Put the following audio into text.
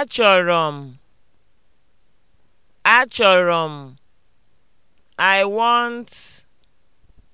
Achọrọ m, achọrọ m, I want